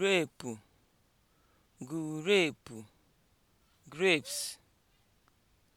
Reepụ, grape (grapes)